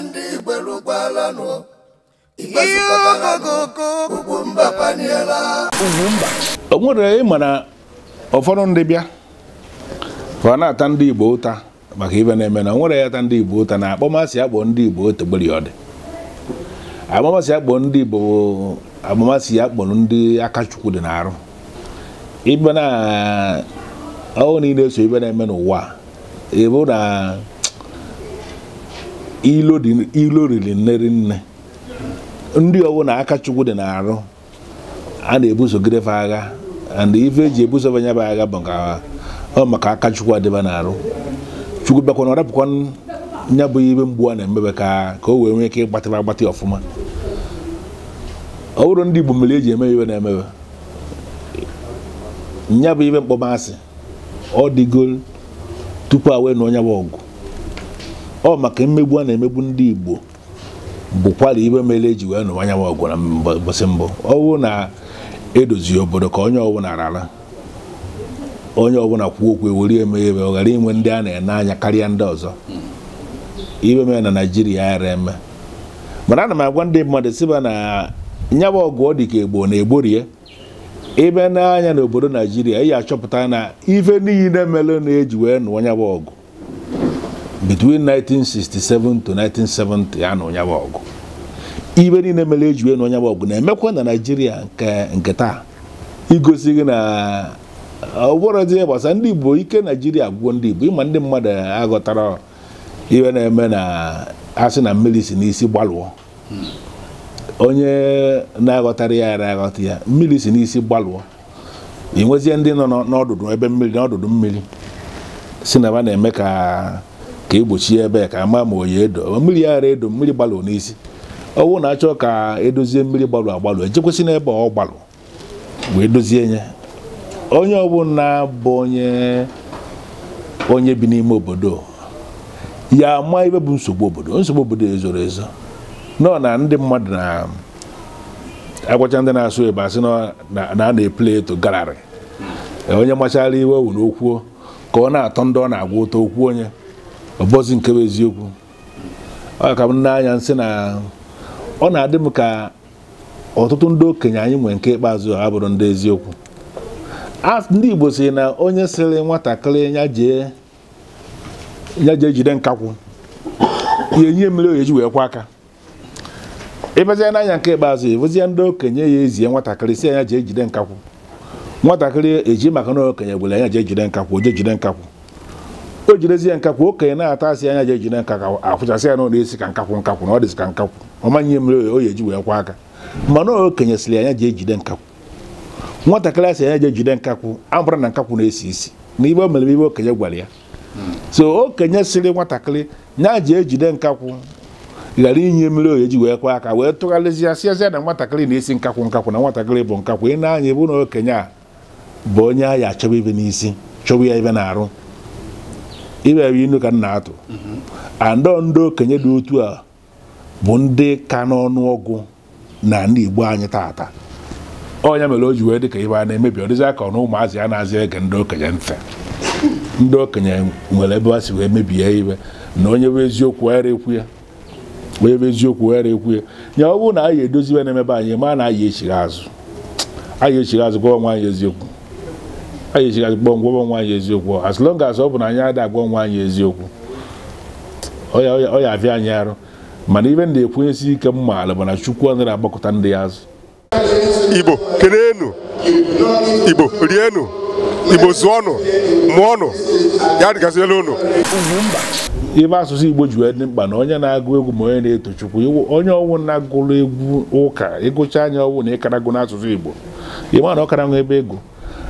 ndị igberugwalanụ Ugwumba paniela o nwere ịmara ụfọdụ ndị bịa ọ na-ata ndị Igbo ụta maka ibe na-eme na nwere ya ata ndị Igbo ụta na akpọmasị akpọ ndị Igbo otogbori ọ dị akpọmasị akpọ ndị Igbo akpọmasị ya kpọrọ ndị akachukwu dị na-arụ ibe na ọwụ niile so ibe na-eme n'ụwa ịbụ na ilo riri nneri nne ndị ọwụ na aka chukwu dị na-arụ a na-ebusogidefe agha and ife eji ebusofe anya bụ agha bụ ọ maka aka chukwu adịba na-arụ chukwu bịakwa na ọ rapụkwa nya bụ ibe mgbu a na-emebe ka ka o wee nwee ike ịgbatịba agbatị ọfụma ọ bụrụ ndị Igbo mere eji eme iwe na-emebe nya bụ ibe mkpọmasị ọ dịgo tupu a wee na onye bụ ọgụ ọ maka mmegbu a na-emegbu ndị Igbo bụkwara ibe mere eji wee nụwa anyanwụ ọgwụ na mbọsị mbụ ọwụ na-edozi obodo ka onye ọbụla rara onye ọbụla kwuo okwu ewere eme o e ghara inwe ndị a na-ene anya karịa ndị ọzọ ibe mere na naijiria ara eme mana ana m agwa ndị mmadụ siba na nyawa ọgụ ọ dị ka egbo na-egborie ibe n'anya obodo Naijiria ị ya achọpụta na ife niile mere na-eji wee nụọ nyawa ọgụ between 1967 to 1970 ya na onye ọgụ ibe niile mere eji wee na onye ọgụ na-emekwa na naijiria nke taa igosi gị na ọ bụrụzie gbasara ndị igbo ike naijiria gwuo ndị igbo ịma ndị mmadụ aghọtara iwe na-eme na asị na mmiri si n'isi gbalụọ onye na-aghọtara ya ara aghọta ya mmiri si n'isi gbalụọ ị nwezie ndị nọ n'ọdụdụ ebe mmiri n'ọdụdụ mmiri si na ba na-eme ka ka egbochi ebe ya ka ama ma oyi edo mmiri ara edo mmiri gbalụ n'isi ọwụ na-achọ ka edozie mmiri gbalụ agbalụ ejekwesị n'ebe ọ gbalụ wee dozie nye onye ọbụla bụ onye onye bi n'ime obodo ya ama ebe bụ nsogbu obodo nsogbu obodo ezoro ezo nọ na ndị mmadụ na agwacha ndị na-asụ ebe asị na a na na-eple eto galarị onye machara iwe wu n'okwuo ka ọ na-atọ ndị ọ na-agwa ụtọ okwu onye ọbọzi nke bụ eziokwu ọ ka m n'anya nsị na ọ na-adị m ka ọtụtụ ndị okenye anyị nwere nke ikpeazụ ha bụrụ ndị eziokwu ndị Igbo si na onye sịrị nwatakịrị ya jee jide nkakwụ ya enye mmiri oyeji wee kwa aka ịbazie n'anya nke ikpeazụ ịbụzie ndị okenye ya ezie nwatakịrị si anya jee jide nkakwụ nwatakịrị eji maka na okenye gwere anya jee jide nkakwụ jee jide nkakwụ o jirezi ya nkakwụ okenye na-ata asị anya ji ejide nka afụchasị ya na ọ na-esi ka nkakwụ nkakwụ na ọ dịsị ka nkakwụ ọma nye mere o ji wee kwa aka mana anya ji ejide nkakwụ nwatakịrị asị anya ji ejide nkakwụ abụrụ na nkakwụ na-esi isi na ibe o mere ibe okenye gwara ya so okenye sịrị nwatakịrị nya ji ejide nkakwụ ghara inye mmiri oyi ji wee kwa aka wee ya sịazịa na nwatakịrị na-esi nkakwụ nkakwụ na nwatakịrị bụ nkakwụ ị na-anya ebe na okenye a bụ onye a ya achọba ibe n'isi chọba ya ibe na-arụ iwewe inu ka nna na-atụ andọ ndị okenye dị otu a bụ ndị ka n'ọnụ ọgụ na ndị Igbo anyị taata ọnya mere o ji wee dị ka ibe a na-emebi ọdịzi aka na ụmụazị a na-azị ege ndị okenye ntị ndị okenye nwere ebe ha si wee mebie ibe na onye bụ eziokwu ghara ekwu ya onye bụ eziokwu ghara ekwu ya nya ọ bụrụ na anyị edoziwe na-emebe anyị ma na anyị echighị azụ anyị echighị azụ gwa ọnwa anyị eziokwu anyị ejighị gwa onwe anyị eziokwu as long as ọ bụ na anyị adịghị agwa onwe anyị eziokwu ọ ya abịa anyị arụ mana ibe m na-ekwenyesi ike m bụ na chukwu anaghị agbakọta ndị ya azụ igbo keleenụ igbo rienụ igbo zụọnụ mụọnụ ya dịgazila ụnụ ibe asụsụ igbo ji wee dị mkpa na onye na-agụ egwu ma onye na-eto chukwu onye ọnwụ na-agụrụ egwu ụka ịgụcha anya ọnwụ na ịkarago n'asụsụ igbo ịma na ọ kara nwa ebe ego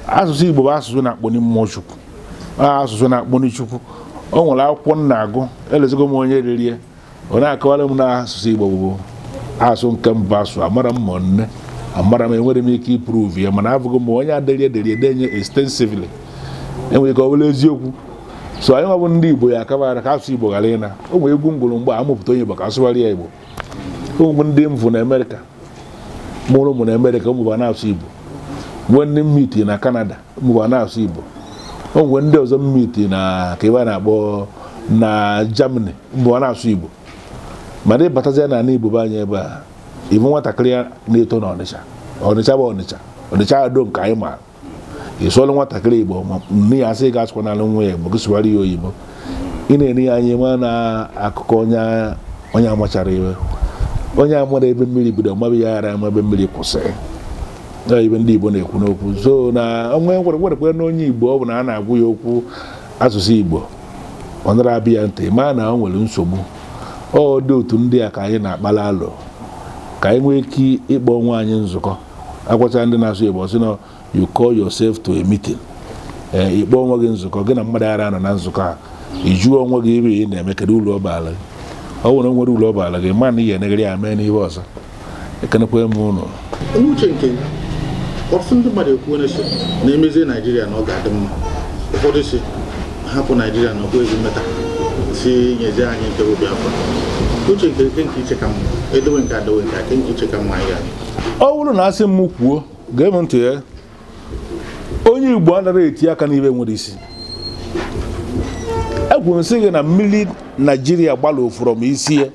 asụsụ igbo bụ asụsụ na mmụọ chukwu asụsụ na-akpọni chukwu o nwere akwụkwọ nna agụ elezigo m onye ririe ọ na-akọwara m na asụsụ igbo bụ asụ nke mbụ asụ amara m ma nne amara m enwere m ike ịpruvu ya mana abụghị m onye adịrị derie edenye extensively enwere ike ọ bụla eziokwu so anyị nwabụ ndị igbo ya akabara ka asụsụ igbo ghara ịna o nwere egwu ngwụrụ mgbe amụpụta onye igbo ka asụgharị ya igbo ụmụ ndị m na amerịka mụrụ ụmụ na amerịka ụmụba na-asụ igbo mgbe ndị mmiti na kanada mgbe na-asụ Igbo o ndị ọzọ mmiti na ka ebe na-akpọ na Germany mụwa na-asụ Igbo mana ịbatazie na ana Igbo be anyị ebe a ibu nwatakịrị ya na-eto na Ọnịcha Ọnịcha bụ Ọnịcha Ọnịcha ado nke anyị maara ị nwatakịrị Igbo nne ya asị ga asụkwa n'ala nwa ya Igbo gị ya oyibo ị na-ere ya anya nwa na akụkọ onye amachara iwe onye amara ebe mmiri bido mabe ya ghara ama ebe mmiri kwụsịrị ibe ndị Igbo na-ekwu n'okwu so na onwe kwere na onye Igbo ọ bụ na a na-agwụ ya okwu asụsụ Igbo ọ nara abịa ya ntị maa na o nwere nsogbu ọ dị otu ndị a ka anyị na-akpala alụ ka anyị nwee ike ịkpọ onwe anyị nzukọ agwacha ndị na-asụ Igbo sị na you call to a ee eh, ịkpọ onwe gị nzukọ gị na mmadụ ara anọ na nzukọ a ijuo onwe gị iri ị na-eme kedu ụlọ ọbala gị ọ nwere nwere ụlọ ọbala gị maa na ị ga-enegara ya mee n'ihe ọzọ ekenekwa m ọtụtụ ndị mmadụ ekwuo si na emezie naijiria na ọ ga-adị mma ụfọdụ si hapụ naijiria na ọkwa ezi mmeta si nyezie anyị nke bụ afọ uche nke nke nke iche ka mma edowe nke adowe nke aka nke iche ka mma ya ọ bụrụ na asị m kwuo gee m ntị ya eh, onye igbo anaghị eti aka n'ibe nwere isi ekwuru m sị gị na mmiri naijiria gbalụ ofụrọ m isi ya eh,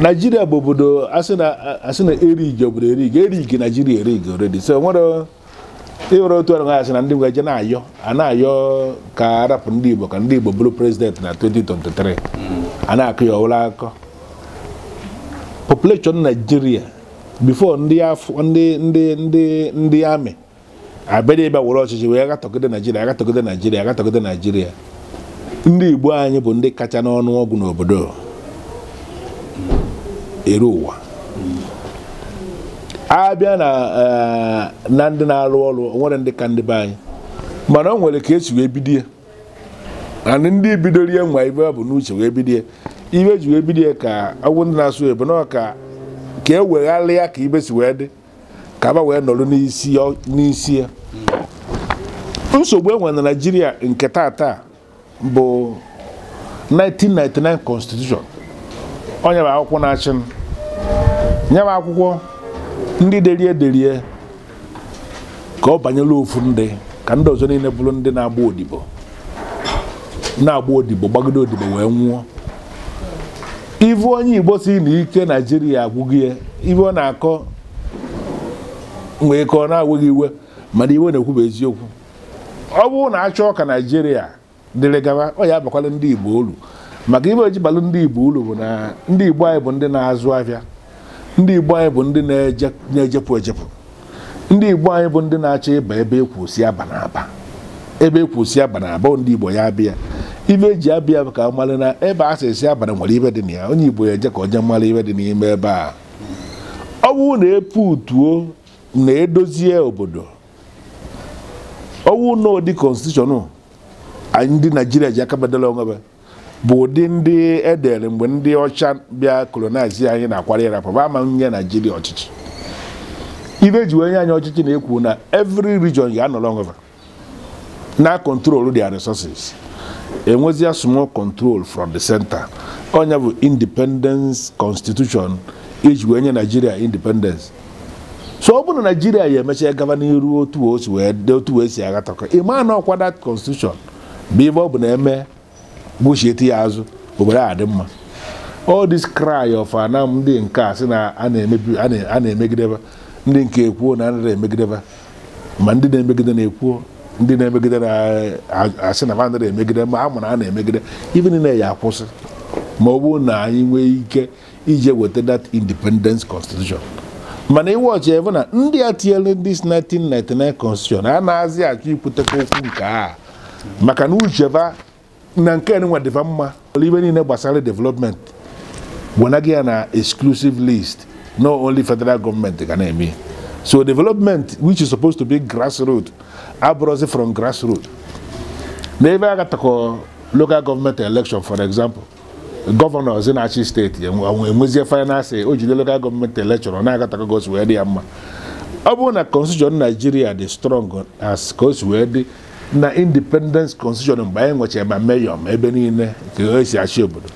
naijiria bụ obodo asị na erigi obodo erigi erigi naijiria erigi oredi so e nwere ịwere otu ọrụ asị na ndị nwe je na-ayọ a na-ayọ ka arapụ ndị igbo ka ndị igbo bụrụ prezident na 2023 a na-akụ ya ọwụla akọ population naijiria bifo ndị ndị ndị ndị ndị amị abịa ebe were ọchịchị wee gatọgide naijiria agatọgide naijiria agatọgide naijiria ndị igbo anyị bụ ndị kacha n'ọnụ ọgwụ n'obodo kere ụwa abịa eh, na ndị na-arụ ọrụ nwere ndị ka ndị be anyị mana ọ nwere ka esi wee bidie na ndị bidorie nwa ibe bụ n'uche wee bidie ibe ji wee bidie ka ọgwụ ndị na-asụ ebe na ka ka e wegharịa ka ibe si wee dị ka aba wee nọrọ n'isi ya nsogbu enwe na naijiria nke tata bụ 1999 constitution onye bụ akwụkwọ na-achị nye m akwụkwọ ndị derie derie ka ọ banyere ofu ndị ka ndị ọzọ niile bụrụ ndị na-agba odibo na-agba odibo gbagide odibo wee nwụọ ivu onye igbo si na ike naijiria agwụghị ọ na-akọ nwee ka ọ na-agwụghị iwe mana iwe na-ekwuba eziokwu ọ bụrụ na achọ ka naijiria dịrị gaba ọ ya abakwala ndị igbo olu maka ibe ojibalụ balụ ndị igbo ulu bụ na ndị igbo anyị bụ ndị na-azụ ahịa ndị igbo anyị bụ ndị na-ejepụ ejepụ ndị igbo anyị bụ ndị na-achọ ịba ebe ekwusi aba na e aba ebe ekwusi aba na aba ndị igbo ya abịa ibe eji abịa bụ ka mara na ebe a sị esi abalị nwere ibe dị na ya onye igbo ya eje ka onye mara ibe dị n'ime ebe a ọ bụrụ na e utuo na edozie obodo ọwụ na ụdị konstitushọn anyị ndị naijiria ji aka bedala onwebe bụ ụdị ndị edere mgbe ndị ọcha bịa kolonize anyị na-akwara yarapaba ama nye naijiria ọchịchị ibe ji onye anyị ọchịchị na-ekwu na every region ga-anọrọ ngova na control dia resources enwezia small kọntrol from the center onye bụ independence constitution iji wee nye naijiria independence so ọ bụrụ na naijiria ya emecha gaba n'iru otu otu wee si aghata ịma na ọkwada that constitution bụ ibe ọ bụ na eme gbochieti ya azụ obodo a dị mma all this cry of anam ah, ndị nke a sị na a na-emegideba ndị nke ekwuo na ndị na-emegideba ma ndị na-emegide na-ekwuo ndị na-emegide na-asị na bandị na-emegide ma a mụrụ a na-emegide ibe niile ya akwụsị ma ọ bụrụ na anyị nwee ike ije weta that independence constitution mana iwọchi ebe na ndị a tinyere this 1999 constitution a na-azị achọ ikwutekwa okwu nke a maka na ucheba na nke nwa dịva mma ibe niile gbasara development wenaghị ya na exclusive list No only federal government ga na-eme so development which is supposed to be grassroots abụrụzi from grassroots n'ebe agatakọ local government election for example gọvanọ zi na-achị steeti enwezie finance o jide local gọọmenti election na-agatakọ gosi wee dị ya mma ọ bụrụ na constitution Nigeria dị strong as ka o si wee dị na independence constitution mgbe anyị nwechara ma meyọ ma ebe niile nke esi achị obodo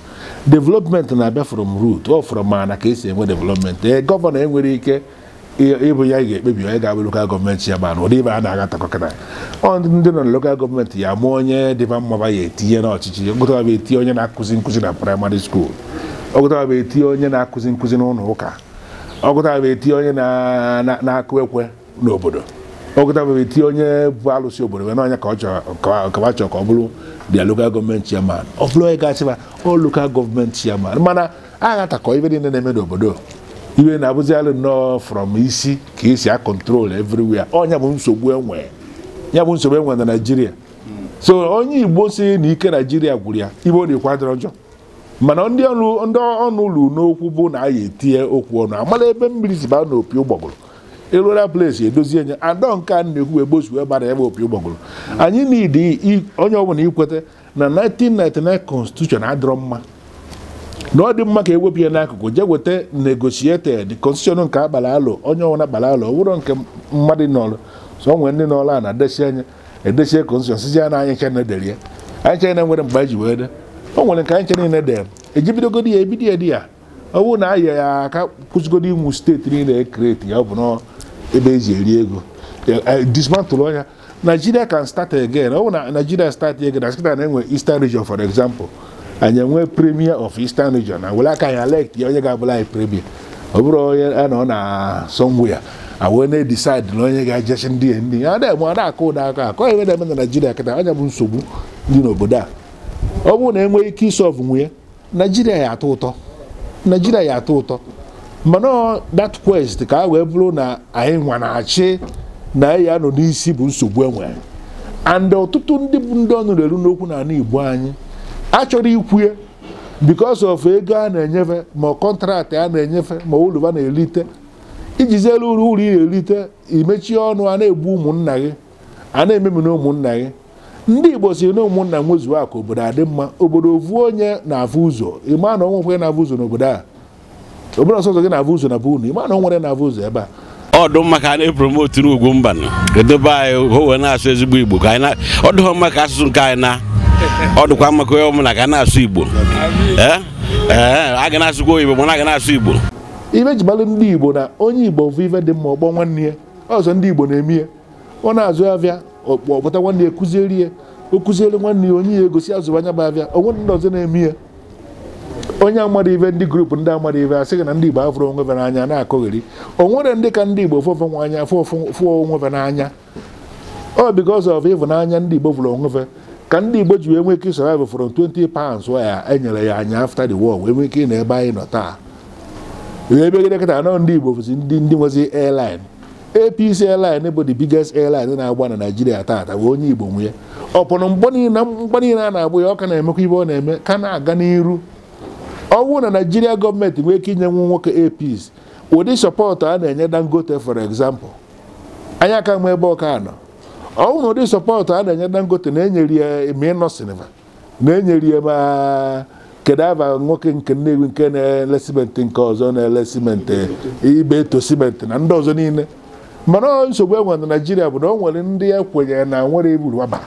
development na-abịa from root ọ fọrọ ka esi enwe development ee eh, gọvanọ enwere ike ịbụ ya ga-ekpebi onye ga-abụ lokal gọọmenti ya mana ụdị ibe a na ọ ndị nọ na lokal gọọmenti ya mụọ onye dịba mma ya etinye n'ọchịchị ọgụtaba etinye onye na-akụzi nkụzi na praịmarị skuul ọgụtaba etinye onye na-akụzi nkụzi n'ụlọ ụka ọgụtaba etinye onye na-akụ ekwe n'obodo ọgụtabegh itinye onye bụ alụsị obodo wee n'anya ka ọ chọrọ ka ọ bụrụ dia lokal gọọmenti chairman ọ bụrụ onye gasịba ọ lokal gọọmenti chairman mana a ghatakọ ibe niile na-eme n'obodo iwe na-abụzi alụ nnọọ from isi ka esi a control everywhere ọnya bụ nsogbu enwe ya bụ nsogbu enwe e na naijiria so onye igbo si na ike naijiria gwụrụ ya na dịkwa dịrọ njọ mana ndị ọnụ ụlọ n'okwu bụ na a ya etinye okwu ọnụ amala ebe mmiri si baa n'opi ụgbọgụrụ eruola place edozi enye adọ nke a na-ekwu egbozuwe gbara ebe opi ụgbọgụrụ anyị na onye ọbụla ikweta na 1999 constitution adịrọ mma na ọ dị mma ka ewepụ ya n'akụkụ jee weta negotiated constitution nke abalị alụ onye ọbụla gbara alụ ọ nke mmadụ nọrụ so nwee ndị nọrụ a na-edesi anya edesie constitution sizi ya na anyị chena dere ya anyị chena nwere mgbe ji wee dee o nwere nke anyị nche niile dere ejibidogodi ya ebido ya di ya ọ bụrụ na anyị ya aka kwụsịgodo inwu steeti niile ekreti ya ọ bụ nọọ ebe eji eri ego e, dismantle ọnya Nigeria can start again ọ bụ na Nigeria start again na skita na-enwe Eastern region for example anyị enwe premier of Eastern region na were aka anyị elect ya onye ga-abụla anyị premier ọ bụrụ onye a nọ na somewhere awee na-edecide na onye ga-ejechi ndị ndị a na-eme ada akụ ụda aka akọ ebe na-eme na Nigeria kịta anya bụ nsogbu dị n'obodo a ọ bụrụ na enweghị ike isọvụ nwunye Nigeria ya atọ ụtọ Nigeria ya atọ ụtọ mana that quest ka a wee bụrụ na anyị nwa na-achị na ya nọ n'isi bụ nsogbu enwe and ọtụtụ ndị bụ ndị ọnụrụ eru n'okwu na ala Igbo anyị achọrọ ikwue because of ego a na-enyefe ma kọntraktị a na-enyefe ma uluva na-erite ijiziela uru ụlọ na-erite imechie ọnụ a na-egbu ụmụnna gị a na-ememi na ụmụnna gị ndị Igbo siri na ụmụnna nwezuo akụ obodo adị mma obodo ovu onye na-afụ ụzọ ịma na na-afụ ụzọ n'obodo a obere ọsọ ọzọ gị na-abụ ụzọ na bụ unu ịma na o nwere na-abụ ụzọ ebe a ọ mma ka a na-epromotu n'ugwu mba edobe anyị ka wee na-asụ ezigbo igbo ka anyị ọ dịghọ mma ka asụsụ nke anyị na ọ mma ka onye ọbụla ka a na-asụ igbo eh? Eh, a ga na-asụkwa oyibo mana a ga na-asụ igbo ibe jibalụ ndị igbo na onye igbo bụ ife dị mma ọgbọ nwanne ya ọzọ ndị igbo na-eme ya ọ na-azụ abịa ọkpọpụta nwanne ya kụzieri ya o kụziere nwanne ya onye ya egosi azụ anya bụ abịa onwe ndị ọzọ na-eme ya onye amara ive ndị grupu ndị amara ive asịghị na ndị igbo afụrụ onwe be n'anya na-akụgheri o nwere ndị ka ndị igbo fụfụ nwa anya fụọ onwe be n'anya ọ because of ịvụnanya ndị igbo fụrụ onwe ka ndị igbo ji wee nwee ike survive from 20 pounds ya enyere ya anya after the war wee nwee ike ị na ebe anyị nọ taa ebegide kịta anọ ndị igbo bụzi ndị ndị nwezi airline apc airline bụ the biggest airline na-agba na naijiria taata wee onye igbo nwee ọ mgbe niile a na-agbụ ya ọ ka na-emekwa ibe ọ na-eme ka na-aga n'iru ọ bụrụ na naijiria gọọmenti nwee ike inye nwu nwoke APC ụdị sọpọtụ a na-enye dangote for example anyị aka ma ebe ọka nọ ọ bụrụ na ụdị sọpọtụ a na-enye dangote na-enyeri ya ma ịnọ na-enyeri ya ma nwoke nke nnewi nke na-ele simenti nke ọzọ na-ele simenti ibe eto simenti na ndị ọzọ niile mana nsogbu e nwere na naijiria bụ na o nwere ndị ya e kwenyere na nwere igburu waba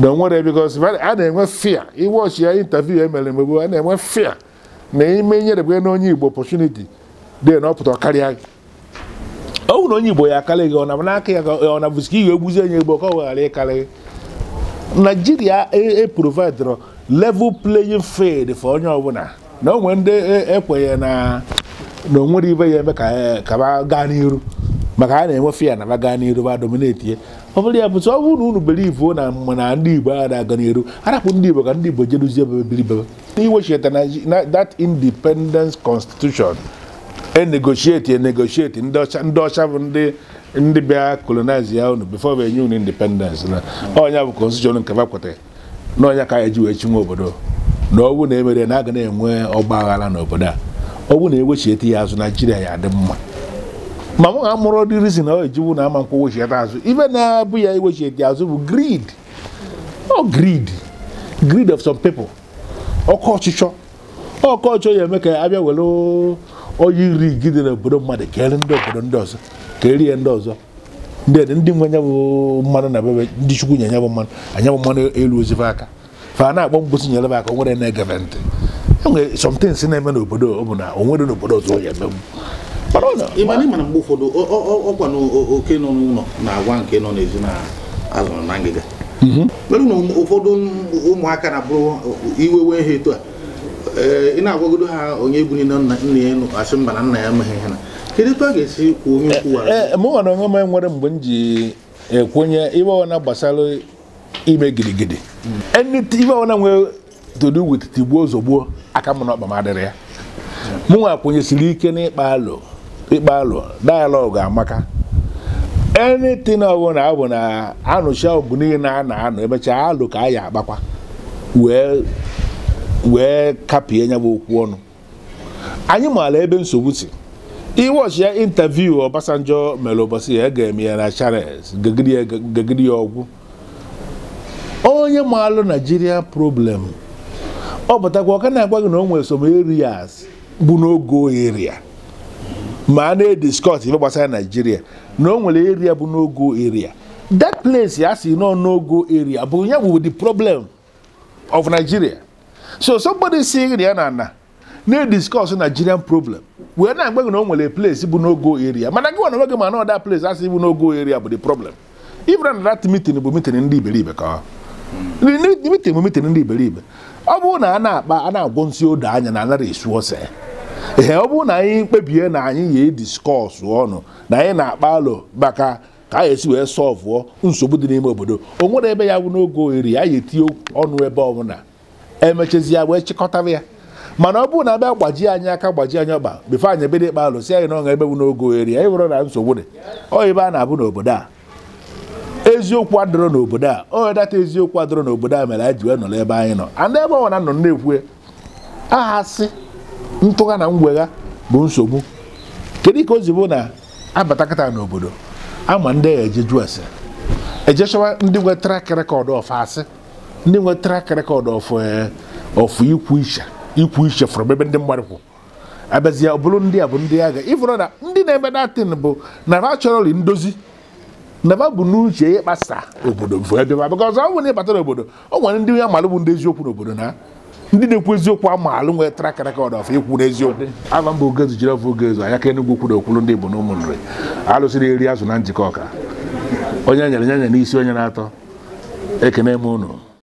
na nwere bikos a na-enwe fia iwọchi ya intaviu emere mgbe gboo a na-enwe fia na ime nyerebere na onye igbo opportunity dee na ọ pụtara karịa gị ọ wụ na onye igbo ya akarị gị ọ na ya ọ na ka ị ga-egbuzi onye igbo ka ọ ghara ịkarị gị naijiria eprovidro e level playing field for onye ọbụla na o nwere ndị ekwenye e na na onwere ibe ya eme ka gaa n'iru maka a na-enwe fiya na ba gaa n'iru ba dominate ọ bụrụ ya bụtụ ọ bụrụ na unu belivu na mana ndị Igbo a na-aga n'eru arapụ ndị Igbo ka ndị Igbo jeruzie ebe biribebe iwechita na that independence constitution enegotiate enegotiate ndị ọcha bụ ndị ndị bịa colonize ya unu before enye unu independence na ọnya bụ constitution nke fa na ọnya ka anyị ji wee chinwe obodo na ọwụ na emere na aga na-enwe ọgba aghara n'obodo a ọwụ na ewechiete ya azụ Naijiria ya adị mma ma m ga mụrụ dị rizin ọ ejiwu na ama nkwa wechiede azụ ibe na-abụ ya dị azụ bụ grid o grid grid of some people ọkọ ọchịchọ ọkọ ya eme ka abịa were onye iri gide n'obodo mmadụ kere ndị obodo ndị ọzọ ka erie ndị ọzọ ndị ndị nwe nya mmanụ na bebe ndị chukwu nye nyabụ mmanụ anyabụ mmanụ elu ozife aka fa na-agba mgbosi nyere aka nwere na-egebe ntị enwere si na-eme n'obodo ọ bụ na o nwere n'obodo ọzọ ya emegbu ịmana ịmana mgbe ụfọdụ ọkwa na oke nọ n'ụlọ na agwa nke nọ n'ezi na-azụrụ na ngịga mhm. merụ na ụfọdụ ụmụaka na-abụrụ iwewe ha etu a eh, ị na-agwagodo ha onye ebuli na nna ya asị mba na nna ya amaghị ha na kedu etu a ga-esi kwuo onye kwuwara eh, eh, mụ nwere onwe m nwere mgbe m ji ekwenye iwe ọna gbasara ime gidigidi mm. iwe ọna nwere to do with tigbuo zogbuo aka m n'ọkpa m adịrị ya mm. mụ nwa kwenyesiri ike n'ịkpa alụ ikpe alụ dayalọgụ amaka anything ọbụla abụ na anụcha ọgụ niile a na anọ emechaa alụ ka a ya akpakwa wee kapie nya bụ okwu ọnụ anyị maala ebe nsogbu si iwọchi ya intaviu Obasanjo mere ụbọchị ya e ga-eme ya na Charles gegidi ya ọgwụ onye maalụ Naijiria problem ọ bụtakwa ọ ka na-agwa gị na o nwere some areas bụ n'oge oyeria ma a na-ediskọt ife gbasara naijiria na o nwere eria bụ n'ogo eria that place a sị nọ n'ogo eria bụ ya bụ the problem of nigeria so somebody si eria na ana na-ediskọs nigerian problem wee na-agba na o nwere place bụ n'ogo eria mana gị nwana onwe gị ma na ọda place asị bụ n'ogo eria bụ the problem ibra na that meeting bụ meeting ndị iberibe ka meeting bụ meeting ndị iberibe ọ bụrụ na a na-akpa a na-agwọ nsị odo anya na anara esu ose ee ọ bụrụ na anyị kpebie na anyị yi diskọs ọnụ na anyị na-akpa alụ maka ka anyị esi wee sọvụọ nsogbu dị n'ime obodo o nwere ebe ya bụ n'oge ohiri ya yi etinye ọnụ ebe ọbụla emechazi ya wee chịkọtara ya mana ọ bụrụ na abịa gbajie anyị aka gbaji anyị ọgba bifo anyị ebido ịkpa alụ si anyị na ọṅa ebe bụ n'oge ohiri anyị nwere na nsogbu dị ọ ebe a na-abụ n'obodo a eziokwu adịrọ n'obodo a onye data eziokwu adịrọ n'obodo a mere anyị ji wee nọrọ ebe anyị nọ and ebe na-ekwue aha sị ntụgha na ngwegha bụ nsogbu kedu ka o zibo na abatakata n'obodo ama ndị eje jụọ ase ndị nwe trak rekọd of asị ndị nwe trak rekọd eh, of ikwu iche ikwu iche fọrọ ebe ndị mmadụ kwụ abazie ọ bụrụ ndị a bụ ndị agha ịfụrụ na ndị na-eme datin bụ nara chọrọli ndozi naba bụ n'uche ya ịkpasa obodo bụ ebe ma ọzọ ọ bụ na ịbata n'obodo o nwere ndị ya malụ bụ ndị eziokwu n'obodo na ndị na-ekwu eziokwu ama alụ nwere trak rekọd of ikwu n'eziokwu aba mba ogezu jiri ọfụ ogezu anya ka enugwu kwuru okwulu ndị igbo na ụmụ nri alụsịrị eri azụ na njikọ ọka onye nyere nyanya n'isi onye na-atọ ekene m unu